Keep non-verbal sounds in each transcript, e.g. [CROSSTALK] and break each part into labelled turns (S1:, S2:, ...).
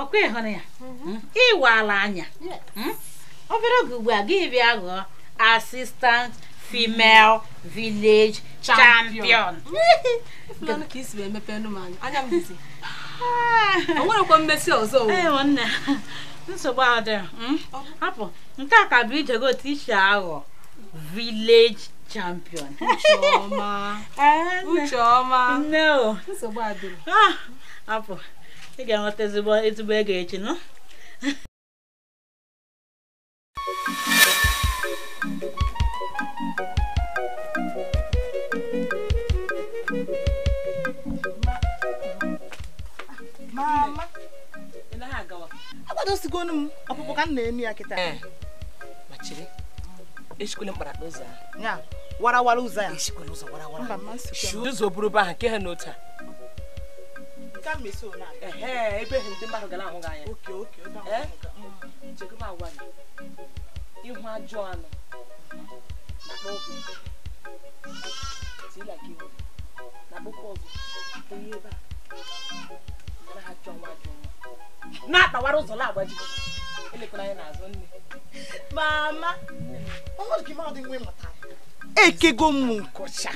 S1: ọkwa ịhụrụ ya mm-hmm. hmm? ala anya obere hmm? oge ugbu a gị bịa ghọọ asistant female vileji champion ka mmesi ọzọ nsogbu adị nke a ka bụ ijego otu iche ị ga-enweta ezigbo ego echi nọ agbadosigonu m ọkpụkpụ ka m
S2: aqui emi ya kịta esikwele mkparakpa ụzọ ya warawara ụzọ ya ụzọ bụrụ be ha nke ha n'otu a
S1: ebe ndị mmadụ ahụ eh? ebe a ha nwa anya n'azụ nne mama ọnọdụ gị mmadụ
S2: ekego m nkọcha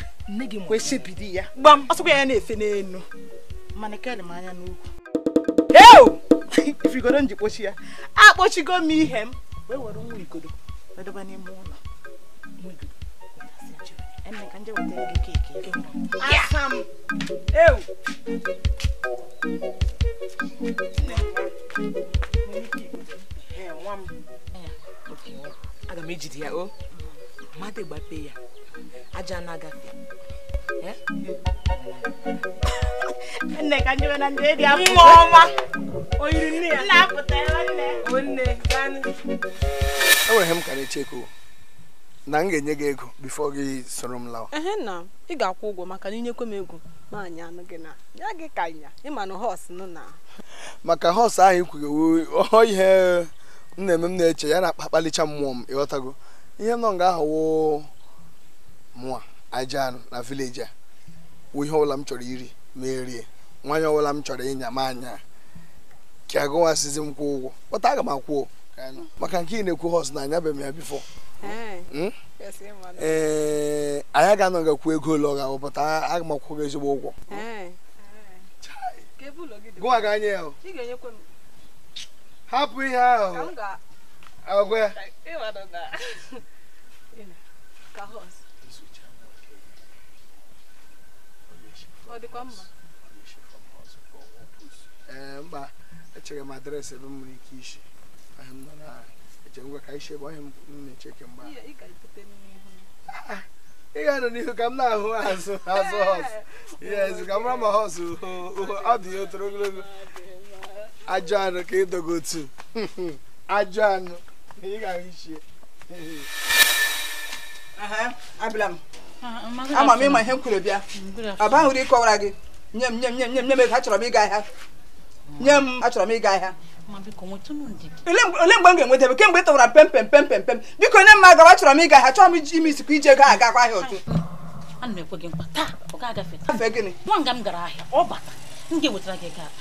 S2: kwesịbidi ya gbam ọsọkwa ya na-efe n'elu mana m anya n'ukwu eu ifigodo ya, ya akpochigo m ihe m wee were nwa igodo n'ime ụlọ aga m ejide ya o mmadụ gbape ya
S1: aja na-agafe nne oh, ka njebe na ndị edi apụ nwa ọma o nne ya nna apụta ebe nne o nne
S2: ganụ enwere m ka na-echeko na m ga-enye gị ego bifo gị soro m lawa
S1: ehe nna ị ga-akwụ ụgwọ maka na inyekwe m ego ma anyị anụ gị na ya gị ka ịnya ịma na họs nụ na
S2: maka họs ahụ ikwugewo ọ ihe m na-eme m na-eche ya na akpalicha mmụọ m ịghọtago ihe nọ nga ahụ woo mụa aja anụ na vileji a wụ ihe ọbụla m chọrọ iri ma erie nwanyị ọbụla m chọrọ ịnya m anya ka agụwasịzi m kwụ ụgwọ kpọta aga m akwụo maka nke ị na-ekwu hos hmm? na anya be ya bifọ ee anyị ga-anọ gakwu ego ole ọ ga-abụ aga m akwụ gị ezigbo ụgwọ hapụ ihe ahụ ọ dịkwa mma Eh, mba echere m adreesị ebe m nwere ike nọ isi eche ngwa ka isi ebe onye m na-eche kemgbe ị ga-anọ n'ihu ka m na-ahụ azụ azụ eh, hos yes ka m mara ma hos ọ dị ya otoro ogologo ajọ anụ ka ịdogo otu ajọ anụ ị ga-ahụ isi abịala
S1: m ama m ịma ihe m kwuru bịa ọ bahụrụ
S2: ịkọwara gị nye m nye m nye m nye m ego achọrọ
S1: m ịga ahịa nye m achọrọ m ịga ahịa ole mgbe m ga-enweta ebe kemgbe tọwara pem pem pem pem pem biko nye m agawa achọrọ m ịga ahịa chọrọ m ime isikwa ije ego agakwa ahịa otu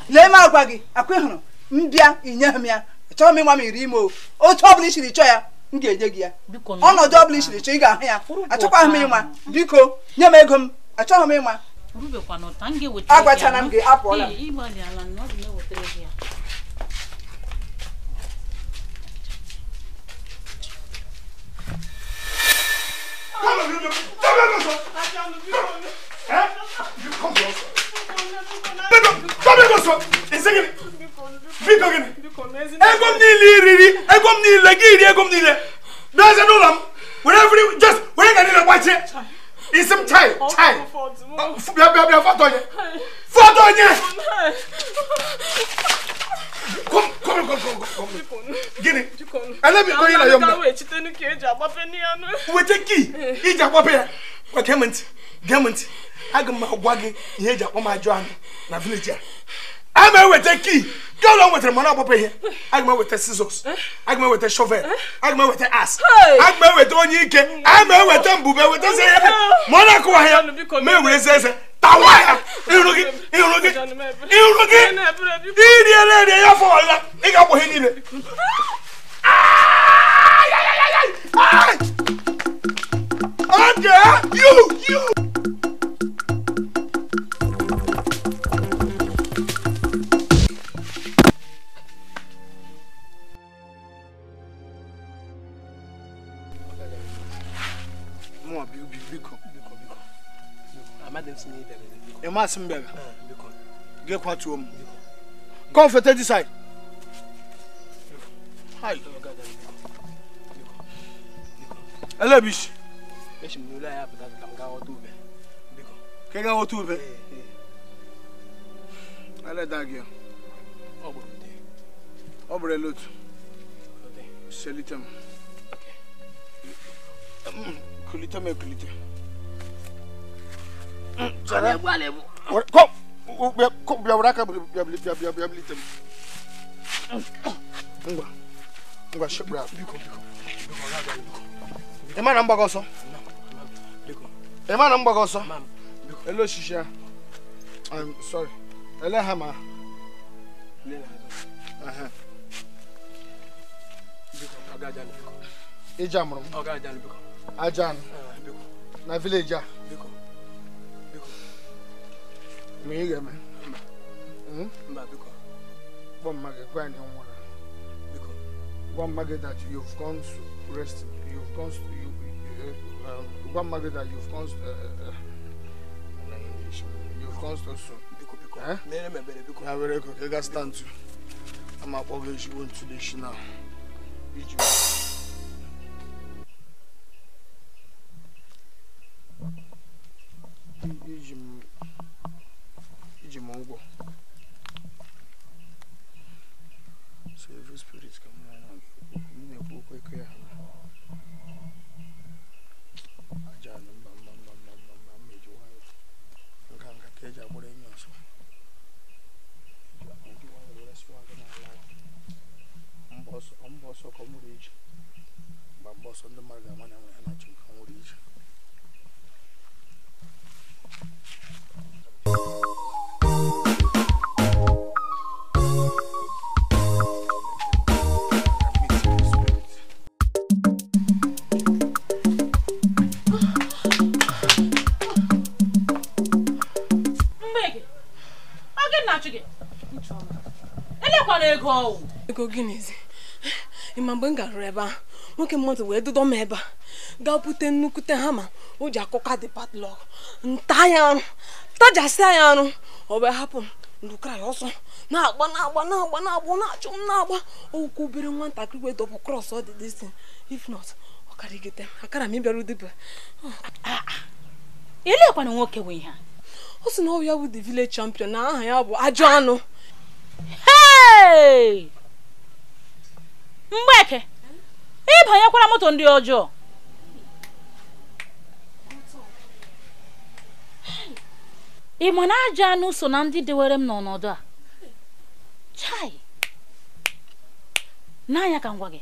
S2: lee m agwa gị akwa ịhụrụ m bịa inye m ya achọghị m ịnwa m iri ime
S1: otu ọ bụla isiri chọọ ya m ga-enye gị ya ọnọdụ ọ bụla isiri chọọ ị ga-ahụ ya achọkwaghị m ịnwa
S2: biko nye m ego m achọghị m ịnwa
S1: agbachara m gị apụọla ego
S2: m niile iriri ego m niile gị iri ego m niile n'eze n'ụlọ m were just were ga niile gbachie ism chai chai bia bia bia fọ́tò yẹn fọ́tò yẹn kom kom kom kom kom gini ẹlẹbi kọ yìí la yọ mọ wete ki ija kpọpẹ ya wa gẹmẹnti gẹmẹnti aga m agwa gị ihe eji akpọ m ajọ anụ na vileji a I'm here with the key Go along girl don wetara mọna I'm here with the scissors I'm here with the shovel I'm here with the ass I'm here with the agama weta onye ike ama eweta mbube weta se ihe mọna akụwa ya ma ewere eze eze tawa ya iru gị iru gị iru gị iri ere ere ya fọ ọla ị ga-akpọ ihe niile Oge, you, you. ma asem bɛga gɛ kwa tuo mu kɔn fɛtɛ di sai hai ɛlɛ bi si kɛgɛ wɔ tu bɛ ɛlɛ da gɛ ɔbɛrɛ lotu sɛlitɛm kulitɛm kulitɛ. Sara. Alebu alebu. Kom! Kom, bia wura ka bia bia bia bia bia tem. Ngwa. Ngwa shebra biko biko. Biko ra ga biko. E ma na mgbago ọsọ. Biko. E ma na mgbago ọsọ. Mam. Biko. Elo shisha. I'm sorry. Ele ha ma. Lela. Aha. Biko ka ga jan biko. Ija mụrụ m. Ọ ga jan biko. Ajan. Biko. Na village a. Biko ma ị ga-eme mba biko gwa mma gị gwa anyị nwụrụ that you've gone to rest you've gone to you, uh, um, gwa that you've gone to, uh, uh, uh, you've gone to soon biko biko eh? mere m ebere biko ya stand to ama akpọ gị ezigbo ntụlechi na iji iji e de mongol Serviço por isso que eu não vou comer Um ndị mmadụ ga-ama na enwe ha na-achụ nke o ije
S1: ego gịnịzi ịma mgbe m garụrụ ebe ahụ nwoke mmadụ wee dudo m ebe a gaa bute nnukwute hama o ji akụka dị patlọk nta ya arụ tajasịa ya arụ ọ wee hapụ m lụkara ya ọsọ na-agba na-agba na-agba na-agba na-achụ m na-agba okwu obere nwatakịrị wee dọbụ krọs ọ dị disin if not ọ karịgide akara m ịbịara dibịa ah, ah. ilekwana nwoke wee ha ọ sị na ọ ya bụ the village champion na aha ya bụ ajọ anụ mgbeke ịbanyekwara moto ndị ọjọọ ị ma na ajọ anụ so na ndị dewere m n'ọnọdụ a chai n'anya ka ngwa gị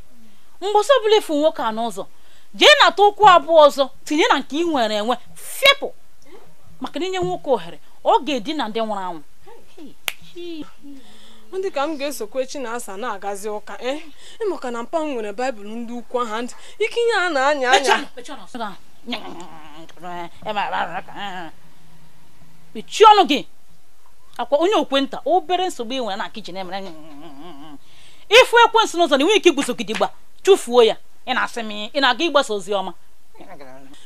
S1: mgbasa ọbụla efu nwoke a n'ụzọ jee nata ụkwụ abụọ ọzọ tinye na nke ị nwere enwe fepụ maka na inye nwoke ohere ọ ga na ndị nwụrụ anwụ ọ dị ka m ga-esokwa echi na asa na-agazi ụka eh? maka na mpa nwere baịbụl ndị ukwu aha ntị ike ihe a na-anya anya mechie ọnụ gị akwa onye okwenta obere nsogbu ị nwere na kichin emere ịfụ ekwensị n'ụzọ na ị nweghị ike igbusogidigba chụfuo ya ị na-asị m ị na-aga ịgbasa ozi ọma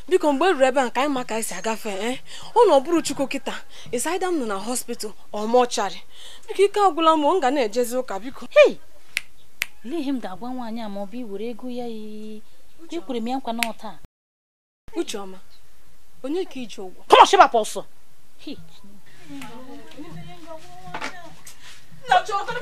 S1: biko mgbe eruru ebe a ka anyị ma ka anyị si agafe ee eh? ụlọ ọbụrụ chukwu kịta ịsaida m nọ na hospital ọmọcharị biko ike agwụla m ọ ga na-ejezi ụka biko olee ihe m ga-agwa nwaanyị a ma ọ bụ iwere ego ya iyi kwuru m ya nkwa na taa onye ka iji ụgwọ kọmọshịbapụ ọsọ Ucheọma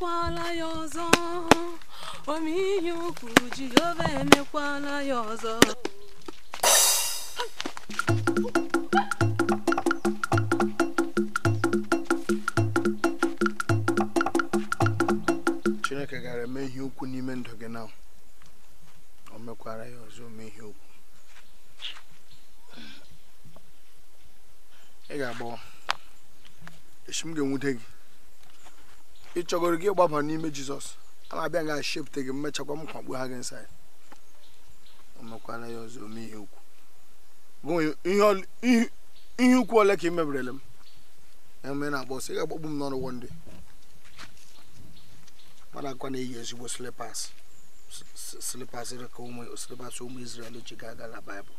S1: emekwala ya ọzọ omeihe ukwu Jehova emekwala ya ọzọ
S2: chineke gara eme ihe ukwu n'ime ndụ gị na o mekwara ya ọzọ ome ihe ukwu ị ga-agbawa echi m ga-enwute gị ị chọgoro gị ịgbaba n'ime jizọs a na-abịa ga shepụta gị mmechakwa m kwakpu ha gị nsaị ọmekwana ya ọzọ ome ihe ukwu ihe ole ka ị mebirele m eme na-agba ọsọ ị ga-agbakpu m n'ọrụ wọnde mmadụ akwa na-eyi ezigbo slipas slipas ka ụmụ slipas ụmụ Izrel ji ga-aga na baịbụl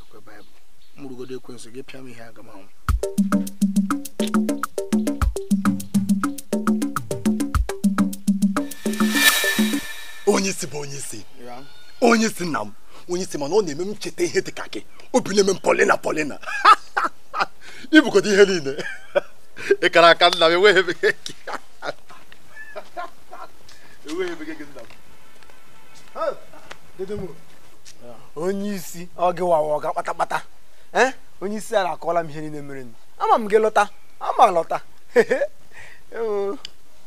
S2: ekwe baịbụl mụrụgodo ekwensị gị pịa m ihe aga m anwụ onye isi bụ onye isi onye isi nna m onye isi mana ọ na-eme m cheta ihe dị ka gị obi na-eme m polina polina ibukọta [LAUGHS] ihe niile [LAUGHS] ịkara aka nna m enweghị ebe gị [LAUGHS] e nna m onye isi ọ gị wawa ọga kpatakpata ee onye isi ala akọọla m ihe niile mere ama m gị lọta ama lọta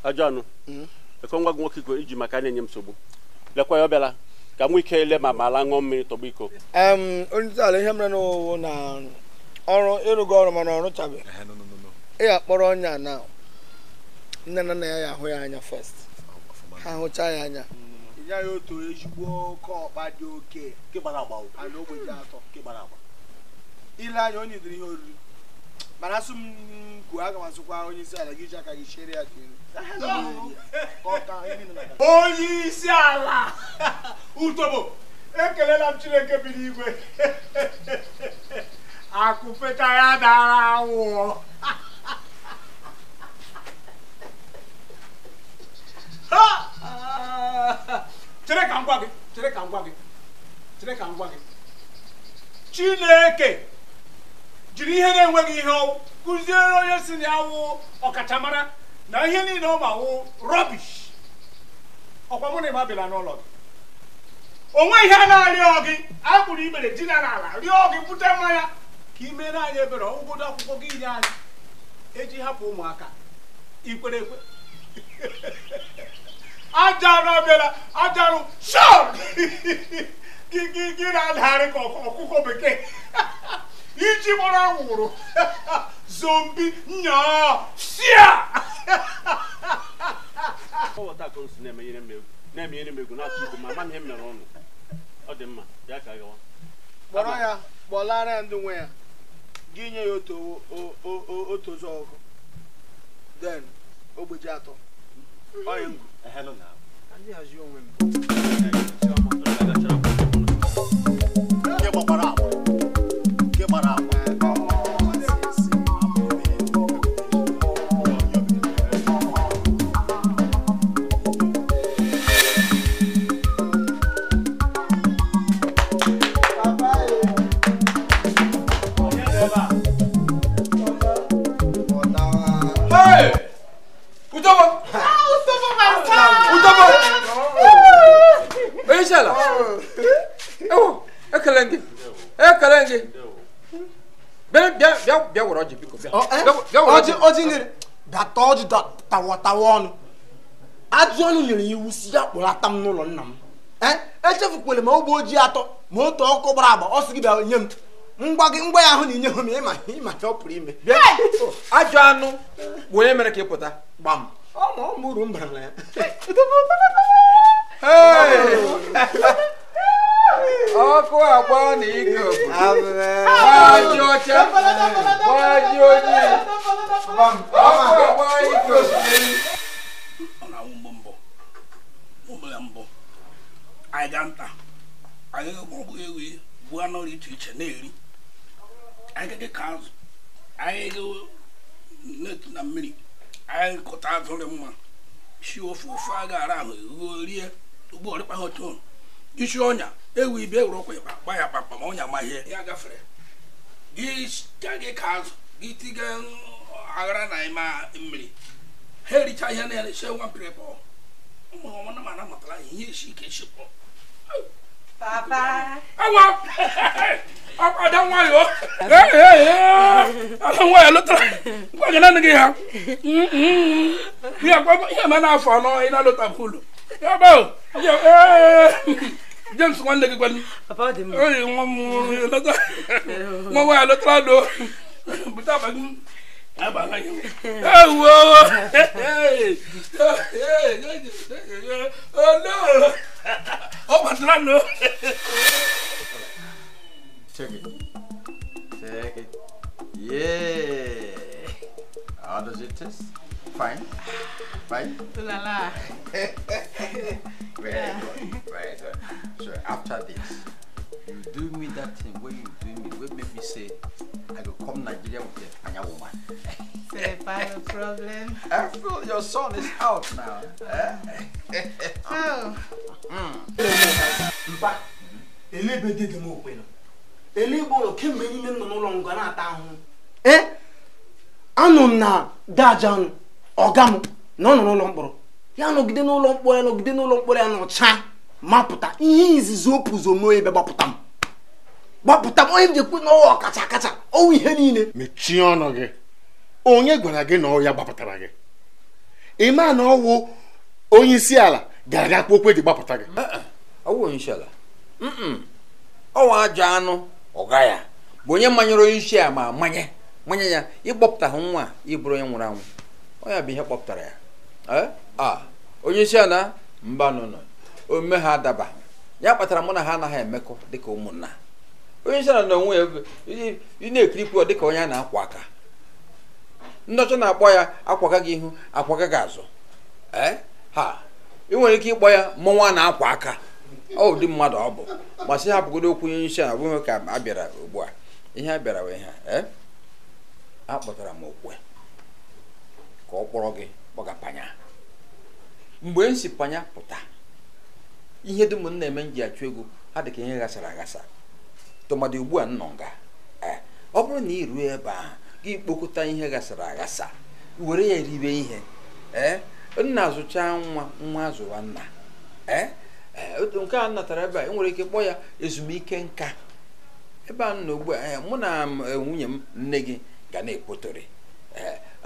S2: ajọ anụ hmm? ekwe nwa gị nwoke iji maka na-enye m nsogbu lekwa ya ọbịala ka m ike ile ma ma ala ṅụọ mmiri tọgbu iko onye ala ihe mere n'ụwụ na ọrụ ịrụgo ọrụ mana ọrụ chabeghị ị ga-akpọrọ ọnya na nne na nna ya ya hụ ya anya first ha hụcha ya anya ya otu ezigbo oke ọkpa dị oke ile anya onye dịrị ihe oriri mana asụ m kwuo aga m asụkwa onye isi ala gị ji aka gị chere ya onye isi ala [LAUGHS] utobo ekelela m chineke bi n'igwe [LAUGHS] akụfeta ya dara awụọ [LAUGHS] chere ka ka gị chere ka m gwa gị chineke jiri ihe na-enweghị ihe ọwụ kụziere onye si na awụ ọkachamara na ihe niile ọ ma wụ rọbish ọkwa mụ na ịma bịara n'ụlọ gị onwe ihe a na-arịọ gị akpụrụ ikpere dina n'ala rịọ gị bute mmanya ka ime mere anyị ebere ọgwụgodo akwụkwọ gị nye anyị eji hapụ ụmụaka ikwere ekwe ajarụ [LAUGHS] aja ajarụ shọp [LAUGHS] gị na-adagharị ka ọkụkọ bekee [LAUGHS] iji gbara anwụrụ zombi nyaa na egwu na ama ihe ọnụ ọ dị mma ya ka kpọrọ ya kpọlara ndị nwe ya gị nye ya otu ụzọ ọgụ den ogbeji atọ onwe m
S3: ọ dị tawatawa
S2: ọnụ nyere iwu si ya kpụrụ ata m n'ụlọ nna m ee e ma ogbe ojii atọ ma otu ọkụ gbara agba ọ sị gị bịa nye m ngwa gị ngwa ya ahụ na inyeghụ m ịma
S3: ịma ọ pụrụ ime ajọ anụ bụ onye mere ka ị pụta gbam ọmụ uru m na ya ọkụ agba na ike gbaji ọcha gbaji ojii ọkụ mbụ
S2: anyị ga bụ iche iche na-eri anyị ka azụ anyị na-etu na mmiri mma si ofe ofe a ahụ isi ọnya ewu ibe ewuru ọkwa ịba gba ya kpakpa ma ọnya ma ya gafere gị ka azụ gị tiga aghara na ịma mmiri ha ericha ihe na ya nwa pọ ụmụ mana matara ihe isi ike isi pọ awa nwayọ ala nwanyị lụtara ngwa gị nanị gị ha ihe ma na-afọ anọ ị na-alụta James nwanne gị nwa nwa lụtara Ewo! Oh no! Oh my God, no!
S3: Check it. Check it. Yeah! How does it Fine. Fine. [LAUGHS] So after this, you do me that thing. What you do me? What make me say? I will come Nigeria with a Panya woman. [LAUGHS] Say, a problem. Uncle, [LAUGHS] eh, your son is out now.
S2: oh. na-ata ọga Ya nọgide n'ụlọ mkpọrọ ya ya nọcha mapụta ihe izizi o pụzo m. gbapụta m onye m ji ekwu na ọwa ọkacha akacha ọnwa ihe niile mechie ọnụ gị onye gwara gị na ọya gbapụtara gị ịma
S3: na ọwụ onye isi ala ga-aga kpụ okwe ji gbapụta gị eh, eh. ọwụ onye isi ala ọwa ajọ anụ ọga ya bụ onye manyere onye isi ala ma manye manye ya ha nwa ịbụrụ onye nwụrụ anwụ ọya bụ ihe kpọpụtara ya eh? onye isi ala mba nụnụ ome ha adaba ya kpatara mụ na ha anaghị emekọ dịka ụmụnna onye isi ala n'onwe onwe ya ị na-ekirikwu ọ dịka onye a na-akwa aka ndị ọcha na-akpọ ya akwaga gị ihu akwaga gị azụ ha ị nwere ike ịkpọ ya mụnwa na-akwa aka ọ ụdị mmadụ ọ bụ masị hapụgodo okwu onye isi ala bụghị ka a bịara ugbu a ihe a bịara wee ha e, akpọtara m okwe ka ọ kpọrọ gị kpọga panya mgbe m si panya pụta ihe dị m na-eme m ji achụ ego ha dị ka ihe ghasara aghasa tụmadị ugbu a nnọ nga eh, ọ bụrụ na ị ruo ebe ahụ gị kpokọta ihe gasara aghasa were ya eribe ihe ee eh, nna nwa nwa azụwa nna ee eh, nke a natara ebe a nwere ike kpọọ ya ezumike nka ebe a nọ ugbu a mụ na nwunye m nne gị ga na-ekwotori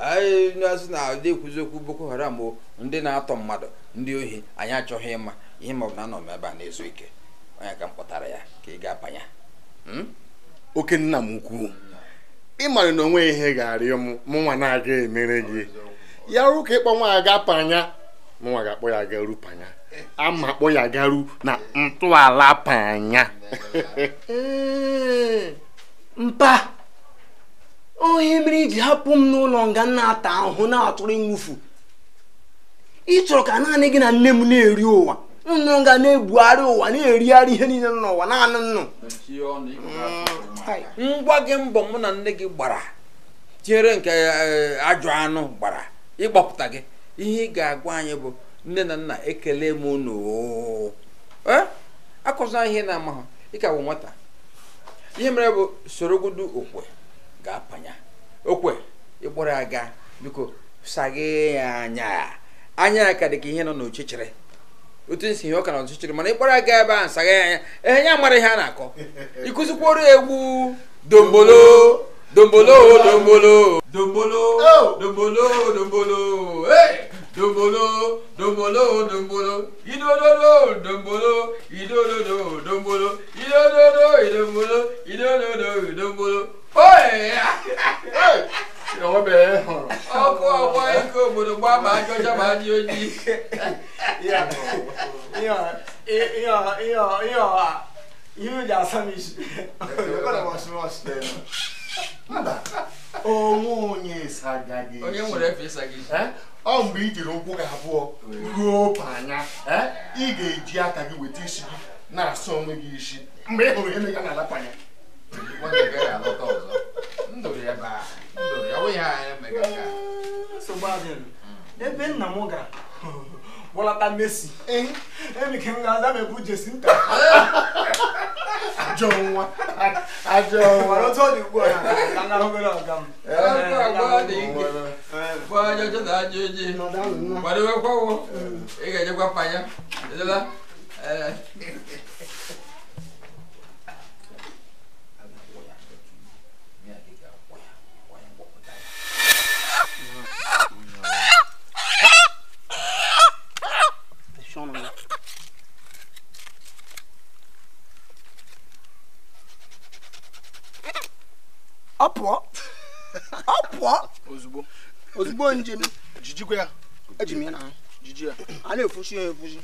S3: anyị na-azụ na ụdị ekwuzi okwu boko haram bụ ndị na-atọ mmadụ ndị ohi anyị achọghị ịma ihe ma ọ bụ na anọ m ebe a na-ezu ike onye ka m kpọtara ya ka ị ga-abanye
S2: oke nna m ukwu ịmara na onwe ihe ga-arịọ m mụnwa na-aga emere gị ya rụ ka ịkpọ nwa aga panya mụnwa ga-akpọ ya garu panya ama akpọ ya garu na ntọala panya mpa onye mere iji hapụ m n'ụlọ nga na-ata ahụhụ na-atụrụ ịnwụfu ị chọrọ ka naanị gị na nne m na-eri ụwa nnụnụ ga na-ebugharị ụwa na-erigharị ihe
S3: niile nọ n'ụwa naanị nnụ ngwa gị mbọ mụ na nne gị gbara tinyere nke eh, ajọ anụ gbara ịgbapụta gị ihe ị ga-agwa anyị bụ nne na nna ekele m unu eh, akụzina ihe na-ama ịka bụ nwata ihe mere bụ sorogodu okwe ga-apanya okwe ịkpọrọ ya gaa biko saghee ya anya anya ya ka dị ka ihe nọ n'ochichiri otu nsi ihe ọ ka na ọchịchịrị mana ịkpọrọ aga ebe a nsaga ya anya ehe nye amara ihe a na-akọ [LAUGHS] ịkụzikworo egwu dombolo dombolo dombolo dombolo oh! dombolo dombolo dombolo dombolo dombolo idododo dombolo idododo dombolo idododo idombolo idododo dombolo oye [LAUGHS] ọkụ ọgba ike obodo gbaa ma ajọ ma adị ojii
S2: onwe onye onye nwere efe ịsaghị isi ọ mgbe i jiri ụkwụ gị abụọ ruo panya ị ga-eji aka gị weta isi gị na-asa onwe gị isi mgbe ị hụrụ ihe na-aga n'ala panya ndụrụ ebe ahụ ebe nna m gara bọlata mesi emike m ga-aza m ebu jesi nta ajọ nwa ajọ nwa otu ọ dị ugbu
S3: a na
S2: ọ pụọ ọ pụọ ozugbo ozugbo njem jijikwa ya eji m ya n'ahụ jiji ya a na-efushi ya efushi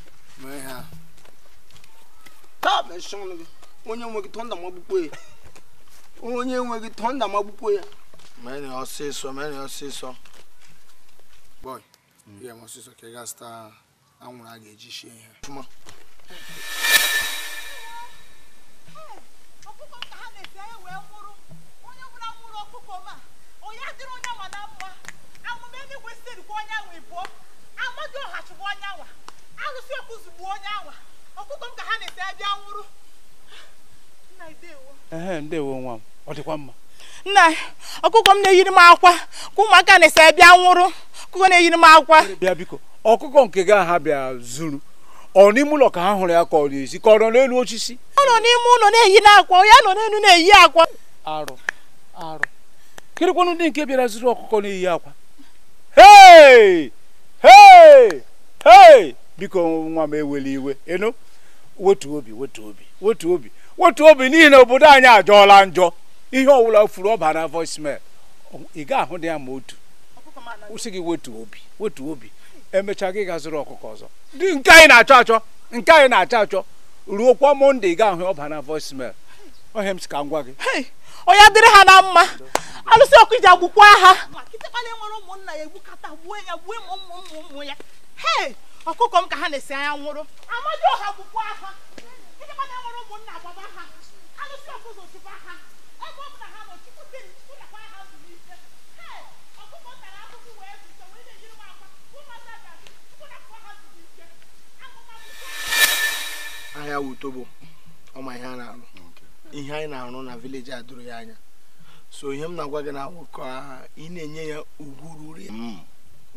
S2: taa bụ nsị ọnụ gị onye nwe gị tọnda magbukwo ya onye nwe gị tọnda magbukwo ya mene ọsịsọ mene ọsịsọ bọị ihe m ọsịsọ ka ị ga-azụta anwụrụ a ga-eji shie ihe dịrị onye na onye onye ọkụkọ m ha na ebi anwụrụ nna ndewo ndewo nwa ọ dịkwa mma nna ọkụkọ m na-eyiri m akwa ka ụmụaka na-ese bịa nwụrụ ọkụkọ na-eyiri m akwa ọkụkọ nke ga ha bịa zuru ọ n'ime ụlọ ka ha hụrụ ya ka ọ na ka ọ nọ n'elu osisi ọ nọ n'ime ụlọ ya nọ n'elu na-eyi akwa arụ arụ kedụkwanụ ndị nke bịara zuru ọkụkọ n'iyi akwa hei hei hei biko nwa m ewele iwe enu wetu obi wetu obi wetu obi wetu obi n'ihi na obodo anyị ajọọla njọ ihe ọwụla furu ọba na voicemail ị ga-ahụ dị ya ma otu kwụsị gị wetu obi wetu obi emechaa gị ga-azụrụ ọkụkọ ọzọ dị nke anyị na-achọ achọ nke anyị na-achọ achọ ruo kwa monde ị ga-ahụ ọba na voicemail ohe m si ka ngwa gwa gị onye adịrị ha na mma alụsị ọkụ iji agbụkwa ha ọkụkọ m ka ha na-esi anya nwụrụ ọha
S1: ha nwere ụmụnna ha alụsị ọkụ ha ebe ha ọkụkọ e m ha
S2: ahịa wutobo ọma ihe a na-arụ ihe anyị na-arụ na vileji a ya anya so ihe m na-agwa gị na ka ị na-enye ya ugwu ruru ya mm.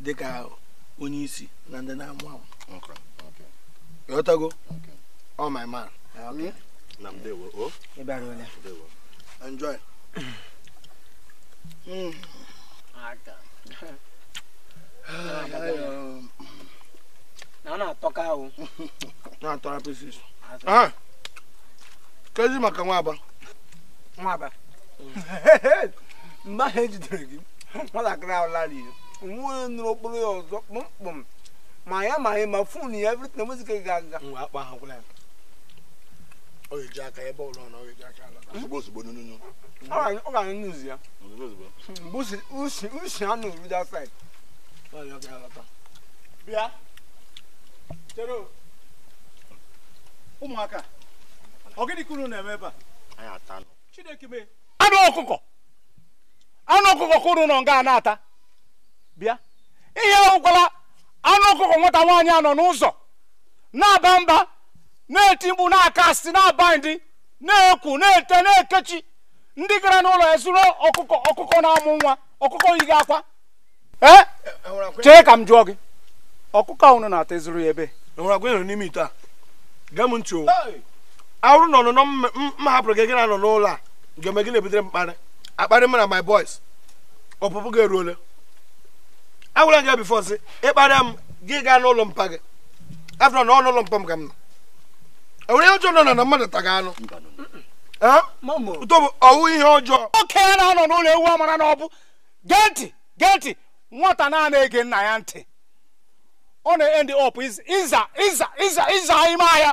S2: dịka onye isi na ndị na-amụ amụ ịghọtago ọ oh my man ah, hmm? enjoy hmm. ah, na ọ na ahụ [LAUGHS] na atọ ah! kezi maka nwaba nwaba mgbe ahụ ejidere gị nwatakịrị ahụ lara ihe nwa onye nụrụ okporo ya ọzọ kpụmkpụm ma ya ma ya ma fon ya evrit na mozika ga aga nwa akpa ha gwụla ya ọ ga-eji aka ebe ụlọ na ọ ga-eji aka ala ozugbo ozugbo n'ụnụ ọ ga-anyụ n'uzi ya mgbe usi usi anụ rudi asaid ọ ga-alata bịa chere ụmụaka anụ ọkụkọ anụ ọkụkọ ka unu nọ nga na-ata bịa ihe ọgwụkwala anụ ọkụkọ nwata nwaanyị a nọ n'ụzọ na-aba mba na-eti mkpu na-aka asị na-aba ndị na-ekwu na-ete na-ekechi ndị gara n'ụlọ ezuru ọkụkọ ọkụkọ na-amụ nwa ọkụkọ yighị akwa ee chee ka m jụọ gị ọkụkọ ahụ na-ata ezuru ya ebe n'ime ite a gaa m ntị awụrụ na ọnụnọ m hapụrụ gị gị na nọ n'ụlọ a ga-eme gị na-ebutere m mkparị akparị m na my boys ọpụpụ gị eruole agwara gị bifo si ịkparịa m gị gaa n'ụlọ mpa gị afọ na ọnụ ụlọ mpa m ka m nọ enwere ihe ọjọọ nọ na mmadụ taga anụ ọwụ ihe ọjọọ okenye na-anọ n'ụlọ ewu amara na ọbụ gee ntị gee ntị nwata naanị ege nna ya ntị ọ na-end up ịza ịza ịza ịza ime ahịa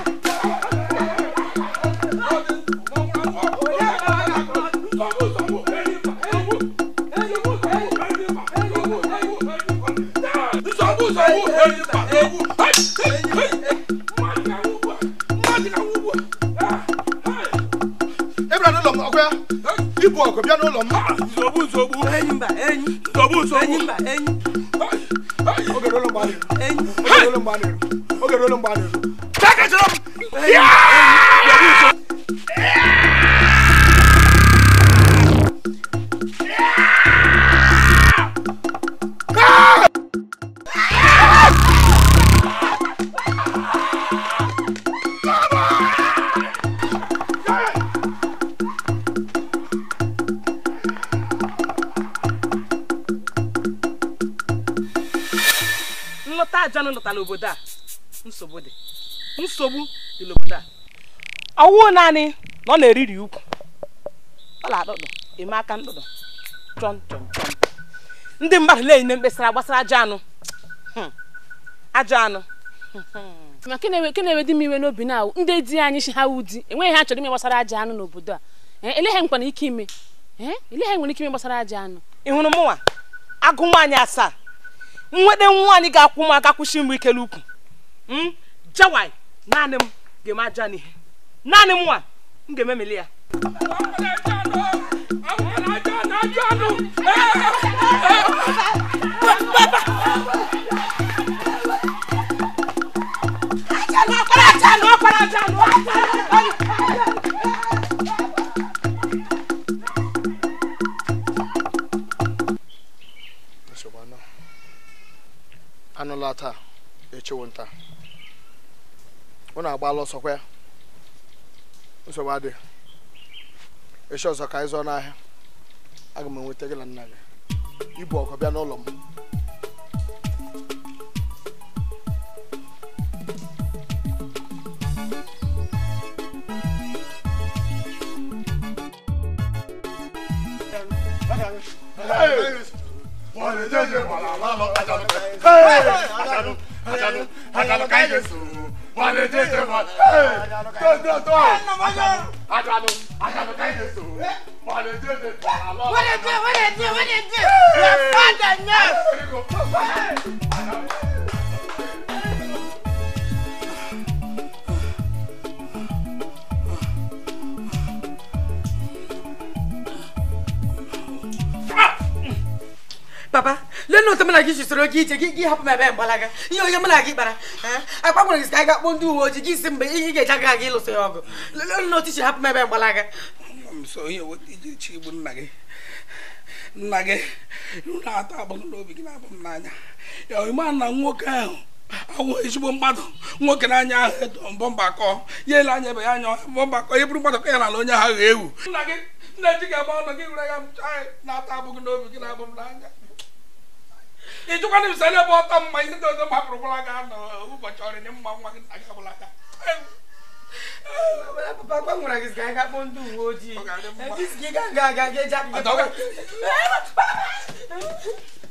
S2: oge rolo mgbe a na-eru oge rolo mgbe a na-eru
S1: ọwụ naanị na ọ na-eriri ukwu ọ na-adụdụ eme aka ndụdụ chọn chọn ndị mmadụ na-enye mkpesara gbasara ajọ anụ hmm. ajọ anụ hmm. ma ke na-ewe di m iwe n'obi na ndị di anyị chi ha wụ enweghị ha chọrọ ime gbasara ajọ anụ n'obodo a eh, elegha nwere ike ime eh, elegha nwere ike ime gbasara ajọ anụ ị hụrụ mụnwa agụ nwaanyị asaa nwede nwaanyị ga-akwụ m aka
S2: kwụsị m ikele ukwu hmm. jawai naanị m ga-eme ajọ n'ihe naanị mụnwa m ga ememele ya anụla taa echewo nta agba agba ọsọkwa ya nsogbu echi ọzọ ka ịzọ n'ahịa aga m enweta gị na nna gị ibu ọkụ bịa n'ụlọ m Hey! Wale jeje man. Hey, don't don't don't. Ajanu, Ajanu, Ajanu kai de so. Wale jeje para lo. Wale jeje, wale jeje, wale jeje. Your father now.
S1: Baba, lee otu mụ na gị jisoro gị ije gị hapụ m ebe mgbalaga ihe onye mụ na gị kpara agbanwere gị ka anyị ga-akpọ ndị uwe ojii gị si mgbe ihe ga-eji aga aga ịlụso ya ọgụ
S2: bụ na otu iji hapụ m ebe mgbalaga nna gị na-atọ agbụrụ n'obi gị na-abụ m n'anya na nwoke ahụ awụ ezigbo mmadụ nwoke na ahụ mbọ ya ele anya ebe ya anya mbọ ye ya onye ahụ ewu nna na ji ọnụ gị were ya na m ị jụkwana m sanye ebe ọtọ mma ihe ndị ọzọ m hapụrụkwala gị ụbọchị ọrịa dị mma nwa gị nta gị aka papa gbanwere gị ndị uwe ojii ga